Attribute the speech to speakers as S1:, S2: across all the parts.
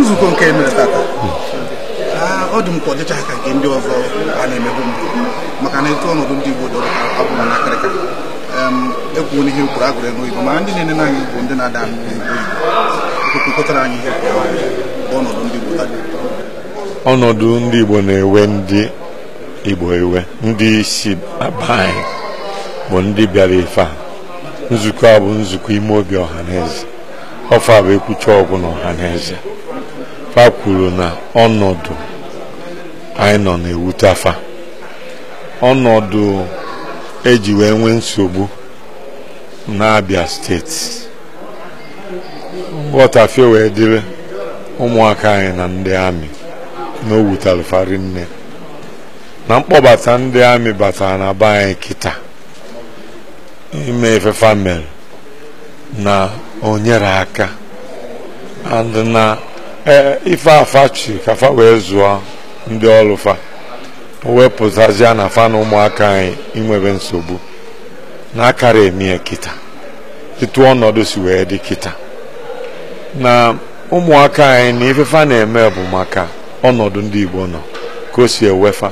S1: nzukọ nke emere tata ah, ọ dị m ka ọ ka nke ndị ọzọ a na-emebu mbụ maka na etu ọnọdụ ndị Igbo dọrọ abụ na akịrịka ekwuo n'ihe kwuru agụrụ n'oyibo mana ndị na-enene anyị bụ ndị na-ada kpụkọtara anyị ihe ọnọdụ ndị Igbo ọnọdụ ndị Igbo na-ewe ndị Igbo ewe ndị isi aba bụ ndị bịara ife a nzukọ a bụ nzukọ ime obi ọha na eze ọfa bụ ekwucha ọgwụ n'ọha na eze fa kwuru na ọnọdụ anyị nọ na-ewute afa ọnọdụ eji wee nwee nsogbu n'Abia steeti nghọtafie wee dịrị ụmụaka anyị na ndị amị na owutalụfari nne na mkpọbata ndị amị batara na be anyị kịta ime ife mere na o aka and na e, ife afa chi ka fa wee zụọ ndị ọrụ fa wepụtazia na fa na ụmụaka anyị inwebe nsogbu na akara emie kịta etu ọnọdụ si wee dị kịta na ụmụaka anyị na ifefa na-eme bụ maka ọnọdụ ndị Igbo nọ ka o si ewefa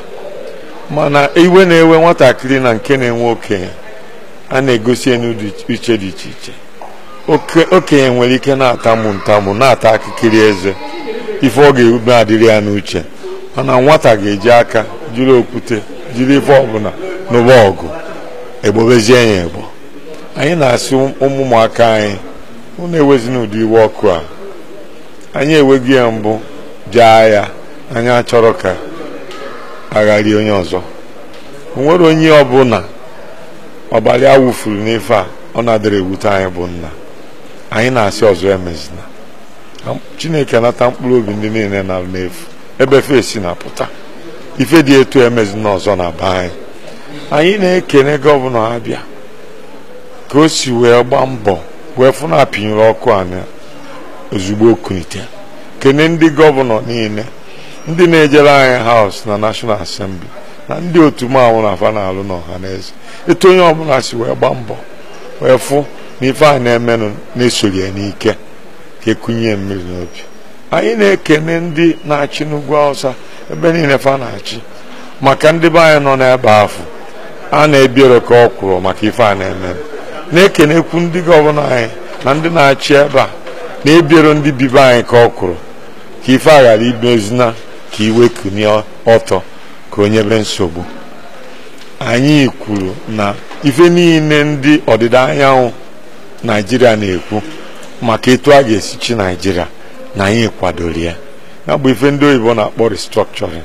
S1: mana iwe na-ewe nwatakịrị na nke na-enwe okenye a na-egosi enu iche dị iche iche okenye nwere ike na-atamụ ntamụ na-ata akịkịrị eze ife ọ ga-erube adịrị ya n'uche mana nwata ga-eji aka jiri okwute jiri ife ọbụla n'ụba ọgụ egbobezie ya egbo anyị na-asị ụmụmụaka anyị unu ewezina ụdị iwe ọkụ a anyị enweghị ya mbụ jee ya anyị achọrọ ka agharị onye ọzọ nwere onye ọbụla ọbara ya wụfuru n'ife a ọ na-adịrị ewute anyị bụ nna anyị na-asị ọzọ emezina chineke nata mkpụrụ obi ndị niile na n'efu ebe si na pụta ife dị etu emezina ọzọ na be anyị anyị na-ekene gọvanọ abịa ka o si wee gbaa mbọ wee fụ na apịnyere ọkụ anyị ozugbo okunite kene ndị gọvanọ niile ndị na-ejere anyị haus na nashọnal asembli na ndị otu manwụ na afa na alụ n'ọha na eze etu onye ọbụla si wee gbaa mbọ wee fụ n'ife a na-emenụ na ya n'ike ka ekunye mmiri n'obi anyị na-ekene ndị na-achị n'ugwu awụsa ebe niile fa na-achị maka ndị be anyị nọ n'ebe afọ a na-ebiere ka ọ kwụrụ maka ife a na-eme na-ekenekwu ndị gọvanọ anyị na ndị na-achị ebe a na-ebiere ndị bibe anyị ka ọ kwụrụ ka ife a ghara imezina ka iwe kunie ọtọ ka onye be nsogbu anyị kwuru na ife niile ndị ọdịda anyanwụ naijiria na-ekwu maka etu a ga-esi chi naijiria na anyị kwadoro ya ya bụ ife ndị oyibo na-akpọ restructuring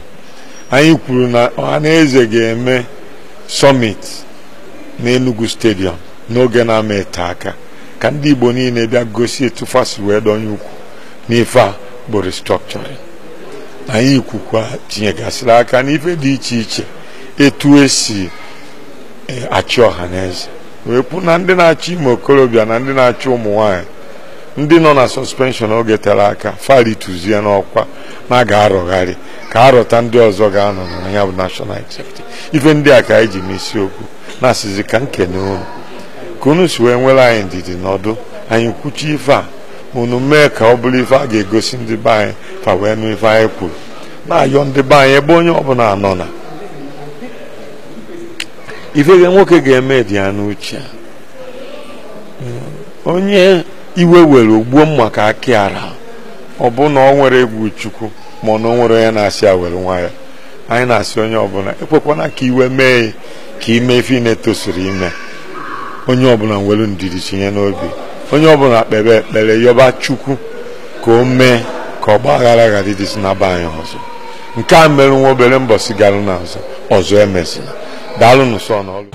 S1: anyị kwuru na eze ga-eme summit na enugu stadium n'oge na-ama ete aka ka ndị igbo niile bịa gosi etu fasi wee donye ukwu n'ife a bụ restructuring anyị kwukwa tinyegasịrị aka n'ife dị iche iche etu esi eh, achị ọha na eze. wee pụ na ndị na achọ ime okorobịa na ndị na achọ ụmụ nwanyị ndị nọ na sọspenshọn oge tere aka farituzie n'ọkwa na ga-arọgharị ka arọta ndị ọzọ ga-anọ n'anya bụ nashọnal executive ife ndị a ka anyị ji okwu na-asịzi ka nkene unu ka unu si wee nwere anyị ndidi n'ọdụ anyị kwuchi ife a unu mee ka ọ bụrụ ife a ga-egosi ndị be anyị fa wee nụ ife anyị kwuru na-ayọ ndị be anyị ebe onye ọbụla nọ na ife nwoke ga-eme dị ya n'uche onye iwe were ogbuo mma ka aki ara ọ bụ na ọ nwere egwu chukwu ma na ọ nwere onye na-asị awere nwa ya anyị na-asị onye ọbụla ekwekwana ka iwe mee ka ime ife na-etosiri ime onye ọbụla nwere ndidi tinye n'obi onye ọbụla kpere ekpere yọba chukwu ka o mee ka ọgba aghara ghara ịdịsị na be anyị ọzọ nke a mere nwa obere mbọsi gara n'azụ ọzọ emezina Dá-lo no sonoro.